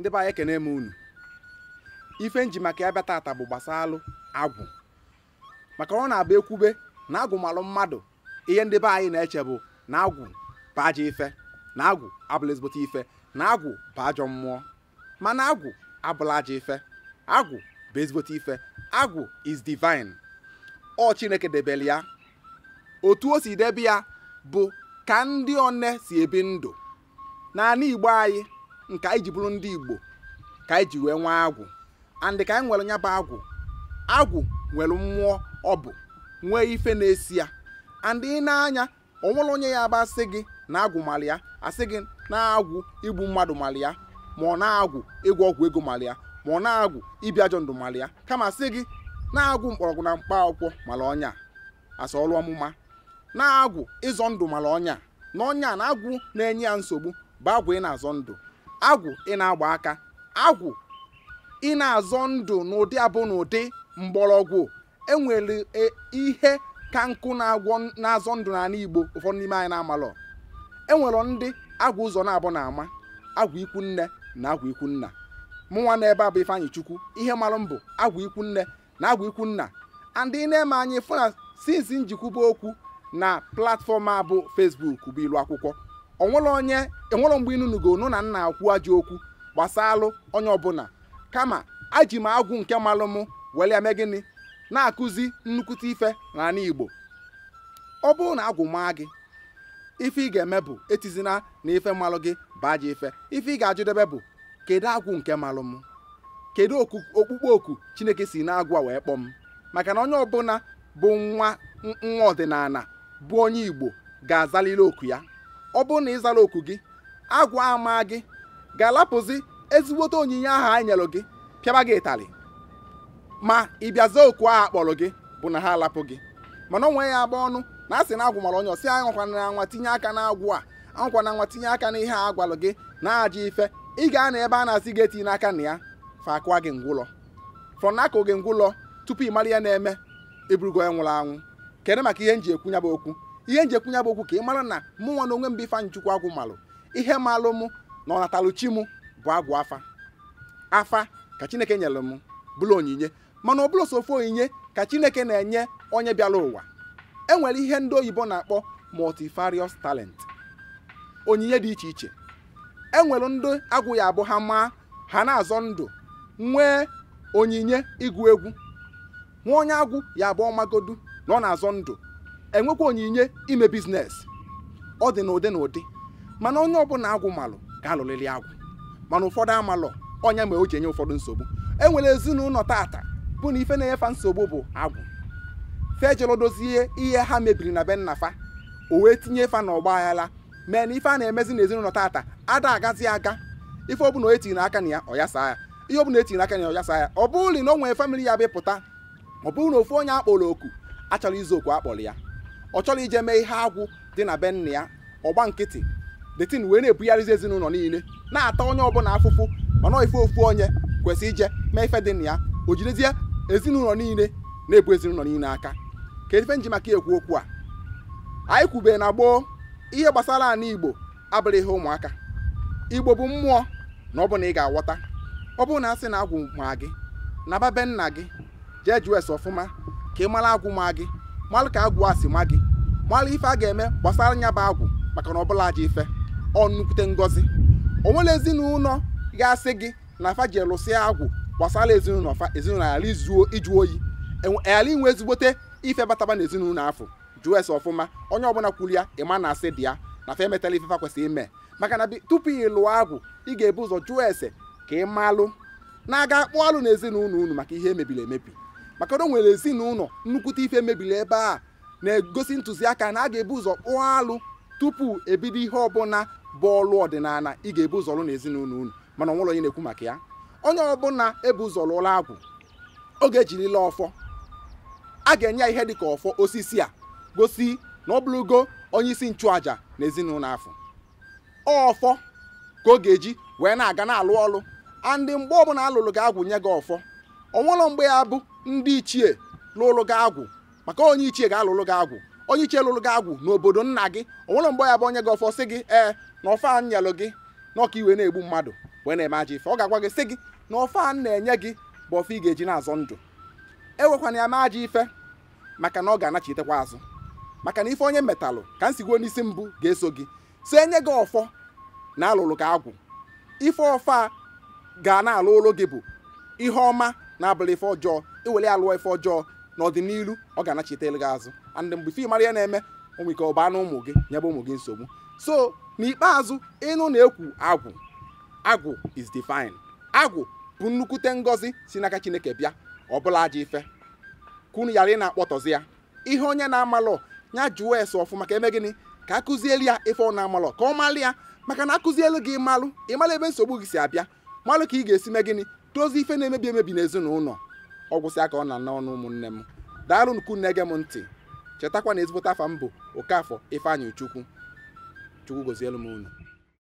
ndị be anyị ekene m unu ife nji maka ya bịa bu bụ gbasalụ agwụ maka ọ na-abụ ekwube na malu mmadụ ihe ndị be anyị na-eche bụ na agwụ bụ ajọ ife na agwụ abụla ezigbote ife na agwụ bụ ajọ mmụọ mana agwụ abụla ajọ ife agwụ bụ ezigbote ife agwụ is divine ọ chineke debele ya otu o si debe ya bụ ka ndị one si ebi ndụ na igbo anyị nke anyị ji bụrụ ndị igbo ka anyị ji wee nwee agwụ andị ka anyị nwere nya bụ agwụ agwụ nwere mmụọ ọ bụ nwee ife na-esi ya andị ị na-anya o nwere onye ya bụ asị gị na agwụ mara ya asị gị na-agwụ igbu mmadụ mara ya ma ọ na-agwụ ịgwọ ọgwụ ego mara ya ma ọ na-agwụ ibi ajọ ndụ ya kama sị gị na-agwụ mkpọrọgwụ na mkpa akwụkwọ mara ọnya asa ọmụma na-agwụ ịzọ ndụ mara ọnya na ọnya na agwụ na-enye ya nsogbu bụ agwụ ị na-azọ ndụ agwụ ị na-agba aka agwụ ị na-azọ ndụ n'ụdị abụ n'ụdị mgbọrọgwụ enwere e, ihe ka nkụ na-azọ ndụ n'ala Igbo ụfọdụ n'ime anyị na-amalọ enwere ndị agwụ ụzọ na-abụ na-ama agwụ ikwu nne na agwụ ikwu nna mụnwa n'ebe a bụ Ifeanyị Chukwu ihe marụ mbụ agwụ ikwu nne na agwụ ikwu nna andị na-eme anyị fụ na sinsi njikwu okwu na platfọm a bụ bụ ilu akwụkwọ onwere onye enwere mgbe inunugo nụ na nna akwu ajọ okwu gbasalụ onye ọbụla kama aji m agwụ nke malụ mụ were eme gịnị na-akụzi nnukwute ife na ala igbo ọ bụrụ na agwụ maa gị ife ị ga-eme bụ etizina na ife malụ gị baa ji ife ife ị ga-ajụdebe bụ kedu agwụ nke malụ m kedu okpukpe oku chineke si na-agwa wee kpọọ m maka na onye ọbụla bụ nwa nwa ọdịnala bụ onye igbo ga-azaliri oku ya ọ bụrụ na ịzara oku gị agwa ama gị ga-alapụzi ezigbote onyinye ahụ anyị nyelụ gị pịaba gị ịtarị ma ị bịazie oku ahụ akpọrọ gị bụ na ha alapụ gị mana onwe ya agba ọnụ na asị na agwụ mara onye ọsị anwakwana na tinye aka na agwụ a anwakwana anwa tinye aka na ihe a gwalụ gị na aja ife ị ga na ebe a na-asị gị etinye n'aka na ya fa akụwa gị ngwụlọ frọnakụ gị ngwụlọ tupu ị mara ya na-eme iburugo e ya nwụrụ anwụ kedụ maka ihe m ji ekwu nya bụ okwu ihe nji ekwunye bụ okwu ka ị mara na mụ nwa na onwe m bụ Ifeanyị Chukwu agwụ malụ ihe malụ mụ na ọnatalụchi mụ bụ agwụ afa afa ka Chineke nyere m bụrụ onyinye mana ọ bụrụ sofu onyinye ka Chineke na-enye onye bịara ụwa enwere ihe ndị oyibo na-akpọ multifarious talent onyinye dị iche iche e nwere ndị agwụ ya abụ ha maa ha na-azọ ndụ nwee onyinye ịgụ egwu nwa onye agwụ ya abụ ọmagodu na ọ na-azọ ndụ enwekwa onyinye ime biznes ọ dị n'ụdị na ụdị mana onye ọbụla agwụ malụ ga-alụrịrị agwụ mana ụfọdụ amalụ ọnya mere o ji enye ụfọdụ nsogbu e nwere ezinụlọ tata bụ na ife na-enyefa nsogbu bụ agwụ fejelụ dozie ihe ha mebiri na be nnafa o wee tinye fa na ọgba mee na ife a na-emezi na ezinụlọ tata ada agazi aga ife ọbụla etinye aka na ya ọyasa ya ihe ọbụla etinye aka na ya ọyasa ya ọ bụrụ na o nwere famili ya bịpụta ọ bụrụ na ofu onye akpọrọ oku achọrọ izu okwu akpọrọ ya ọ chọrọ ije mee ihe agwụ dị na be nna ya ọgba nkịtị detin wee na-ebugharịzi ezinụlọ niile na-ata onye ọbụla afụfụ mana ife ofu onye kwesị ije mee ife dị na ya o jidezie ezinụlọ niile na-ebu ezinụlọ niile aka ka ife nji maka ekwu okwu a anyị kwubee na gboo ihe gbasara ala igbo abụrụ ihe ụmụaka igbo bụ mmụọ na ọ bụ na ị ga-aghọta ọ bụrụ na asị na agwụ ma gị na babe nna gị jee jụọ ese ọfụma ka ị mara agwụ ma gị malụ ka agwụ asị si ma gị mara ife a ga-eme gbasara anya bụ agwụ maka na ọbụla aja ife ọ nnukwute ngọzi o nwere ezinụlọ ga-asị gị na afa ji elụsịa agwụ gbasara ezinụlọ fa ezinụlọ ghara izuo iju oyi e e ala inwe ezigbote ife bataba na ezinụlọ afọ jụọ ese ọfụma onye ọbụla kwuru ya ịma na asị dị ya na fa emetala ife fa kwesịrị ime maka na tupu ị lụọ agwụ ị ga-ebu ụzọ jụọ ese ka ị na-aga akpụ alụ na ezinụlọ unu maka ihe emebiri emebi maka na o nwere ezinụlọ nnukwute ife mebiri ebe a na-egosi ntụziaka na a ga-ebu ụzọ kpụọ alụ tupu ebido ihe ọbụla bụ ọlụ ọdịnala ị ga-ebu ụzọ lụ na ezinụlọ unu mana ọnwụlọ onye na-ekwu maka ya onye ọbụla ebu ụzọ lụọla agwụ oge ejirila ọfọ a ga-enye ya ihe dị ka ọfọ osisi a gosi na ọ bụrụgo onye isi nchụaja na ezinụlọ afọ ọfọ ka ọ ga-eji wee na-aga na-alụ ọlụ ndị mgbe ọbụla alụlụ gị agwụ nye gị ọfọ ọnwụlọ mgbe ya bụ ndị ichie lụrụ gị agwụ maka onye ichie ga-alụlụ gị agwụ onye ichie lụrụ gị agwụ n'obodo nna gị onwere mgbe ya bụ onye gị ọfọ sị gị ee na ọfa nyelụ gị na ọka iwe na-egbu mmadụ wee na-eme aja ife ọ ga-agwa gị sị gị na ọfa na-enye gị bụ ọfa ị ga-eji na-azọ ndụ ewekwana ya mee aja ife maka na ọ ga-anachitekwa azụ maka na ife onye metalụ ka nsigwo n'isi mbụ ga-eso gị so enye gị ọfọ na alụlụ gị agwụ ife ọfa ga na-alụ ụlụ gị bụ ihe ọma na abụla ife ọjọọ iwere ya lụọ ife ọjọọ n'ọdịnihu ọ ga-anachite gị azụ and mgbe ife mara ya na-eme onwe ike ọba na ụmụ gị nyebe ụmụ gị nsogbu so n'ikpeazụ ịnụ na-ekwu agwụ agwụ is divine agwụ bụ nnukwute ngọzi si n'aka chineke bịa ọbụla aja ife kunu yara ị na-akpọtọzi ya ihe onye na-amalụ ya jụọ ese ọfụma ka eme gịnị ka akụzieli ya ife ọ na-amalụ ka ọ malụ ya maka na akụzielu gị malụ ịmalụ ebe nsogbu gị si abịa malụ ka ị ga-esi mee gịnị ife na-emebi emebi n'ezinụlọ ọgwụsị aka ọ na anọ n'ụmụ ụmụnne m daalụ nnukwu nne m ntị chetakwa na ezigbote afa m bụ Okafọ ifeanyi Chukwu Chukwu gozielu m unu